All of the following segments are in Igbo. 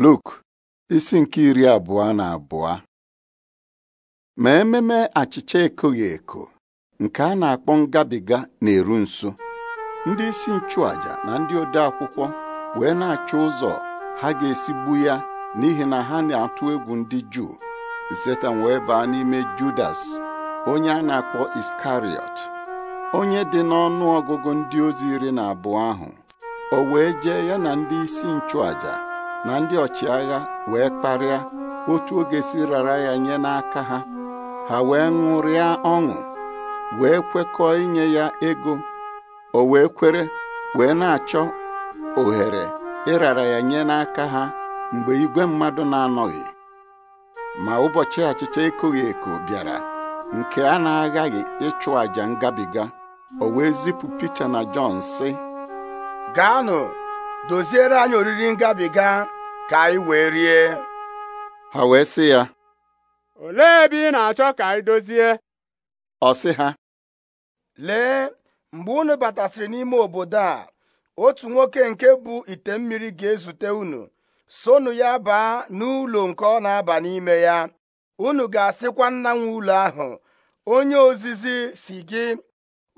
Luk isi nke iri abụọ na abụọ ma ememe achịcha ekoghị eko nke a na-akpọ ngabiga na-eru nso ndị isi nchụàjà na ndị ode akwụkwọ wee na-achọ ụzọ ha ga-esi gbu ya n'ihi na ha na-atụ egwu ndị Juu Setan wee baa n'ime Judas onye a na-akpọ Iskariot onye dị n'ọnụ ọgụgụ ndị ozi iri na abụọ ahụ o wee jee ya na ndị isi nchụàjà. na ndị ọchịagha wee kparịa otu oge si rara ya nye n'aka ha ha wee ṅụrịa ọṅụ wee kwekọọ inye ya ego o wee kwere wee na-achọ ohere ịrara ya nye n'aka ha mgbe igwe mmadụ na-anọghị ma ụbọchị achịcha ekoghị eko bịara nke a na-aghaghị ịchụ àjà ngabiga o wee zipụ Pita na Jọn sị gaanụ doziere anyị oriri ngabiga ka anyị wee rie ha wee sị ya olee ebe ị na-achọ ka anyị dozie ọ sị ha lee mgbe unu batasịrị n'ime obodo a otu nwoke nke bụ ite mmiri ga-ezute unu sonu ya baa n'ụlọ nke ọ na-aba n'ime ya unu ga-asịkwa nna nwe ụlọ ahụ onye ozizi si gị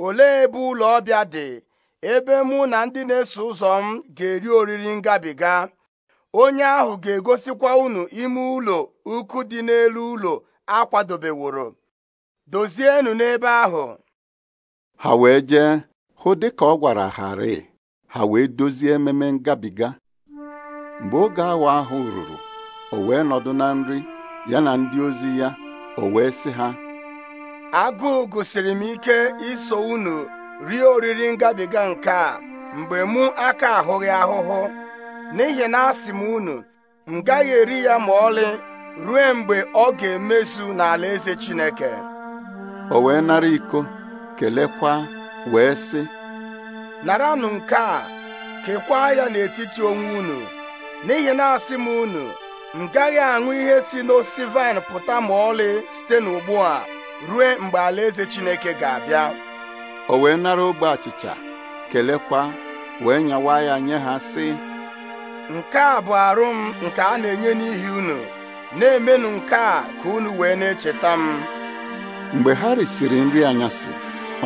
olee ebe ụlọ ọbịa dị ebe mụ na ndị na-eso ụzọ m ga-eri oriri ngabiga onye ahụ ga-egosikwa unu ime ụlọ ukwu dị n'elu ụlọ akwadobeworo dozienụ n'ebe ahụ ha wee jee hụ dịka ọ gwara harị ha wee dozie ememe ngabiga mgbe oge awa ahụ ruru o wee nọdụ na nri ya na ndị ozi ya o wee sị ha agụụ gosiri m ike iso unu rie oriri ngabiga nke a mgbe mụ aka ahụghị ahụhụ n'ihi na asị m unu m gaghị eri ya ma ọlị ruo mgbe ọ ga-emezu n'ala eze Chineke o wee nara iko kelekwa wee sị naranụ nke a kekwaa ya n'etiti onwe unu n'ihi na asị m unu m gaghị aṅụ ihe si n'osisi vaịn pụta ma ọlị site n'ugbu a ruo mgbe alaeze Chineke ga-abịa o wee nara ogbe achịcha kelekwa wee nyawa ya nye ha sị nke a bụ arụ m nke a na-enye n'ihi unu na-emenụ nke a ka unu wee na-echeta m mgbe ha risiri nri anyasị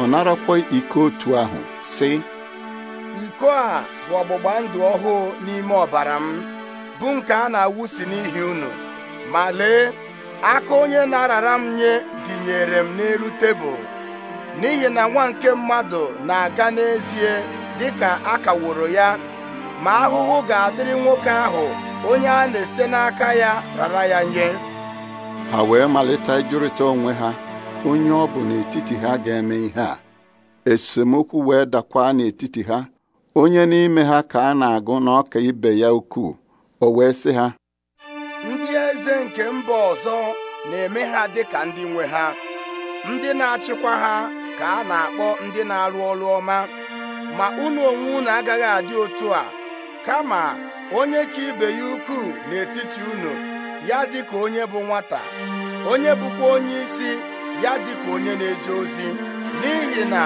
ọ narakwa iko otu ahụ sị iko a bụ ọgbụgba ndụ ọhụụ n'ime ọbara m bụ nke a na-awụsi n'ihi unu ma lee aka onye na-arara m nye dịnyere m n'elu tebụl n'ihi na nwa nke mmadụ na-aga n'ezie dị ka a kaworo ya ma ahụhụ ga-adịrị nwoke ahụ onye a na-esite n'aka ya rara ya nye ha wee malite ịjụrịta onwe ha onye ọ bụ n'etiti ha ga-eme ihe a esemokwu wee dakwa n'etiti ha onye n'ime ha ka a na-agụ na ọka ibe ya ukwuu o wee sị ha ndị eze nke mba ọzọ na-eme ha dị ka ndị nwe ha ndị na-achịkwa ha ka a na-akpọ ndị na-arụ ọrụ ọma ma unu onwe unu agaghị adị otu a kama onye ka ibe ya ukwuu n'etiti unu ya dị ka onye bụ nwata onye bụkwa onye isi ya dị ka onye na-eje ozi n'ihi na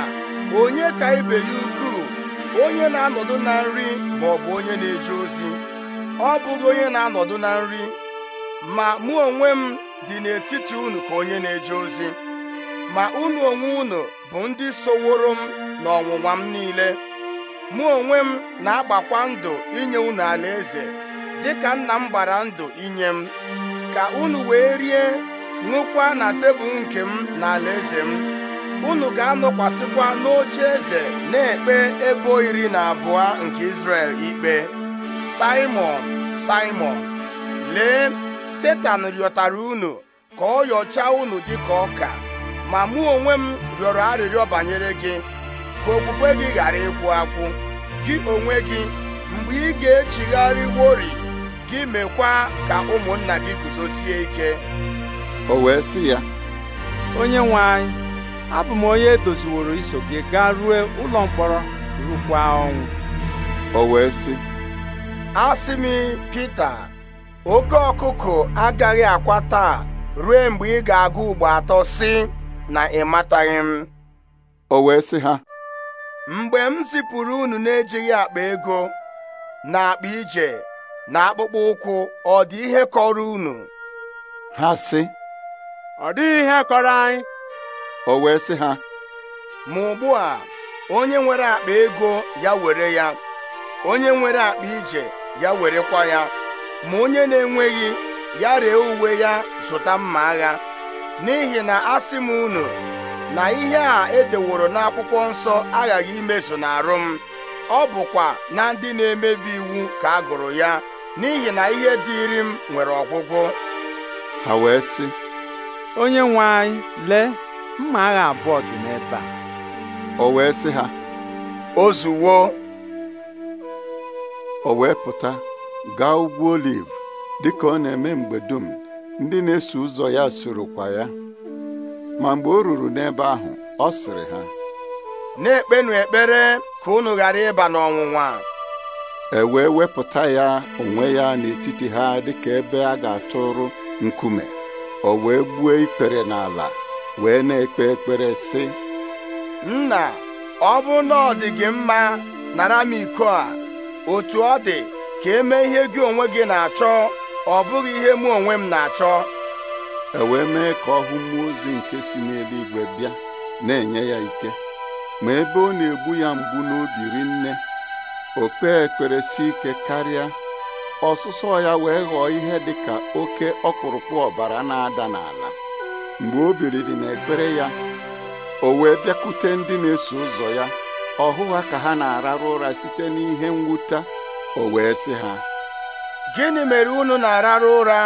onye ka ibe ya ukwuu onye na-anọdụ na nri ma ọ bụ onye na-eje ozi ọ bụghị onye na-anọdụ na nri ma mụ onwe m dị n'etiti unu ka onye na-eje ozi ma unu onwe unu bụ ndị soworo m n'ọnwụnwa m niile mụ onwe m na-agbakwa ndụ inye unu alaeze dịka nna m gbara ndụ inye m ka unu wee rie ṅụkwa na tebụl nke m na eze m unu ga-anọkwasịkwa n'oche eze na-ekpe ebo iri na abụọ nke Izrel ikpe simon simon lee Setan rịọtara unu ka ọ yọchaa unu dịka ọka ma mụ onwe m rịọrọ arịrịọ banyere gị ka okpukpe gị ghara ịkwụ akwụ gị onwe gị mgbe ị ga echigharị wori gị mekwa ka ụmụnna gị guzosie ike o wee sị ya onye nwe anyị abụ m onye edoziworo iso gị gaa ruo ụlọ mkpọrọ rukwa ọnwụ o wee sị asị m oke ọkụkụ agaghị akwa taa ruo mgbe ị ga-agụ ugbo atọ sị na ịmataghị m o wee sị ha mgbe m zipụrụ unu na-ejighị akpa ego na akpa ije na akpụkpọ ụkwụ ọ dị ihe kọrọ unu ha sị ọ dịghị ihe kọrọ anyị o wee sị ha ma ugbu a onye nwere akpa ego ya were ya onye nwere akpa ije ya werekwa ya ma onye na-enweghị ya ree uwe ya zụta mma agha n'ihi na asị m unu na ihe a edeworo n'akwụkwọ nsọ aghaghị imezu n'arụ m ọ bụkwa na ndị na-emebi iwu ka agụrụ ya n'ihi na ihe dịịrị m nwere ọgwụgwụ ha wee sị onye nwe anyị lee mma agha abụọ dị n'ebe a o wee sị ha ozuwo o wee pụta gaa ugwu oliv dịka ọ na-eme mgbe dum ndị na-eso ụzọ ya kwa ya ma mgbe o ruru n'ebe ahụ ọ sịrị ha na-ekpenụ ekpere ka unu ghara ịba n'ọnwụnwa e wee wepụta ya onwe ya n'etiti ha dịka ebe a ga-atụrụ nkume o wee gbuo ikpere n'ala wee na-ekpe ekpere sị nna ọ bụ na ọ dị gị mma nara m iko a otu ọ dị ka eme ihe gị onwe gị na-achọ ọ bụghị ihe mụ onwe m na-achọ ewee mee ka ọ hụ mmụọ ozi nke si n'eluigwe bịa na-enye ya ike ma ebe ọ na-egbu ya mgbu n'obi nne. o kpee ekpere si ike karịa ọsụsọ ya wee ghọọ ihe dị ka oke ọkpụrụkpụ ọbara na-ada n'ala mgbe o na n'ekpere ya o wee bịakute ndị na-eso ụzọ ya ọhụ ha ka ha na-ararụ ụra site n'ihe mwute o wee sị ha gịnị mere unu na-arara ụra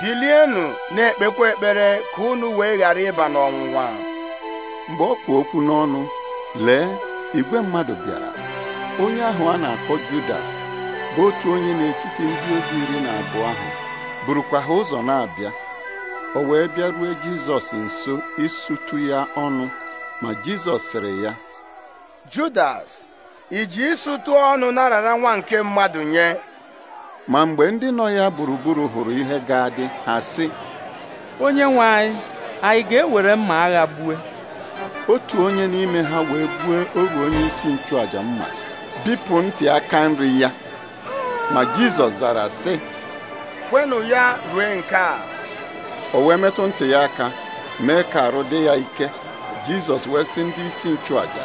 bilienụ na-ekpekwa ekpere ka unu wee ghara ịba n'ọnwụnwa mgbe ọ kpụ okwu n'ọnụ lee igwe mmadụ bịara onye ahụ a na-akpọ Judas bụ otu onye n'etiti ndị ozi iri na abụọ ahụ burukwa ha ụzọ na-abịa o wee bịaruo Jizọs nso isutu ya ọnụ ma Jizọs sịrị ya Judas iji ịsụtụ ọnụ narara nwa nke mmadụ nye ma mgbe ndị nọ ya gburugburu hụrụ ihe ga-adị ha sị onye nwe anyị anyị ga-ewere mma agha gbue otu onye n'ime ha wee gbue ogbe onye isi nchụaja mma bipụ ntị aka nri ya ma Jizọs zara sị kwenụ ya rue nke a o wee metụ ntị ya aka mee ka arụ dị ya ike Jizọs wee sị ndị isi nchụaja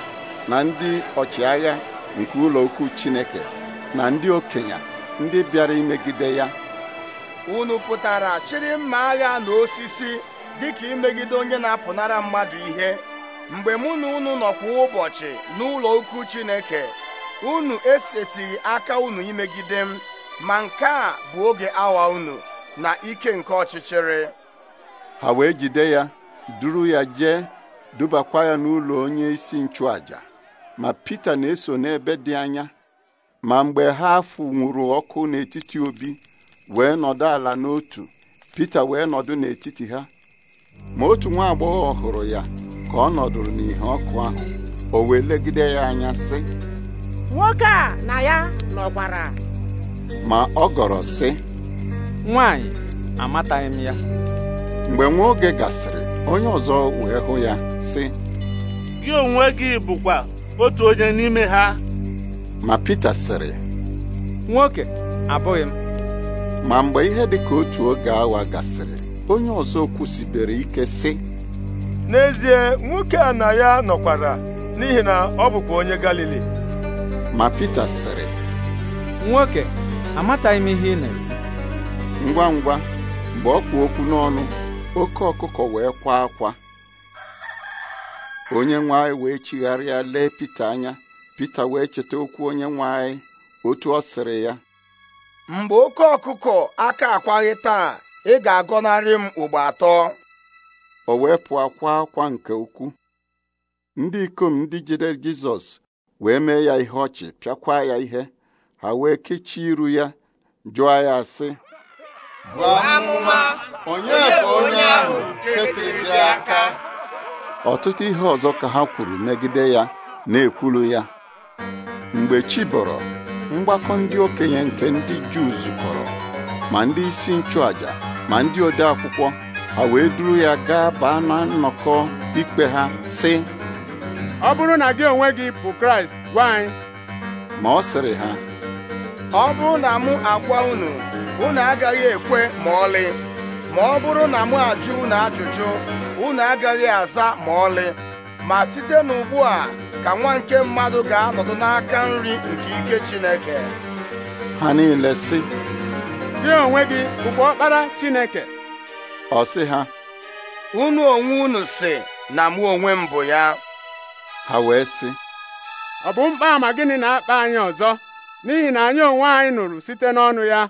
na ndị ọchịagha nke ụlọ ukwu Chineke na ndị okenye ndị bịara imegide ya unu pụtara chịrị mma agha na osisi dịka imegide onye na-apụnara mmadụ ihe mgbe mụ na unu nọkwa kwa ụbọchị n'ụlọ ukwu Chineke unu esetighị aka unu imegide m ma nke a bụ oge awa unu na ike nke ọchịchịrị ha wee jide ya duru ya jee dubakwa ya n'ụlọ onye isi nchụàjà, ma Pita na-eso n'ebe dị anya ma mgbe ha fụnwụrụ ọkụ n'etiti obi wee nọdụ ala n'otu Pita wee nọdụ n'etiti ha ma otu nwa agbọghọ hụrụ ya ka ọ nọdụrụ n'ihe ọkụ ahụ o wee legide ya anya sị nwoke a na ya nọkwara ma ọ gọrọ sị nwanyị amataghị m ya mgbe nwa oge gasịrị onye ọzọ wee hụ ya sị gị onwe gị bụkwa otu onye n'ime ha ma Pita sịrị nwoke abụghị m ma mgbe ihe dị ka otu oge awa gasịrị onye ọzọ kwusibere ike sị n'ezie nwoke a na ya nọkwara n'ihi na ọ bụkwa onye Galili ma Pita sịrị nwoke amataghị m ihe ị na-eme ngwa ngwa mgbe ọ kpụ okwu n'ọnụ oke ọkụkọ wee kwa akwa onye nwe anyị wee chigharịa lee Pita anya Pita wee cheta okwu onye nwe anyị otu ọ sịrị ya mgbe oke ọkụkọ aka akwaghị taa ị ga-agọnarị m ugbo atọ o wee pụọ akwa akwa nke ukwu ndị ikom ndị jide Jizọs wee mee ya ihe ọchị pịakwa ya ihe ha wee kechie iru ya jụọ ya sị buo onye onye ahụ aka ọtụtụ ihe ọzọ ka ha kwuru megide ya na-ekwulu ya mgbe chi bọrọ mgbakọ ndị okenye nke ndị Juu zukọrọ ma ndị isi nchụàjà ma ndị ode akwụkwọ ha wee duru ya gaa baa na nnọkọ ikpe ha si ọ bụrụ na gị onwe gị bụ Kraịst gwa anyị ma ọ sịrị ha ọ bụrụ na mụ agwa unu unu agaghị ekwe ma ọlị ma ọ bụrụ na mụ ajụ unu ajụjụ unu agaghị aza ma ọlị ma site n'ugbu a ka nwa nke mmadụ ga-anọdụ n'aka nri nke ike Chineke ha niile sị gị onwe gị bụkwa ọkpara Chineke ọ sị ha unu onwe unu si na mụ onwe m bụ ya ha wee si. ọ bụ mkpa ama gịnị na-akpa anyị ọzọ n'ihi na anyị onwe anyị nụrụ site n'ọnụ ya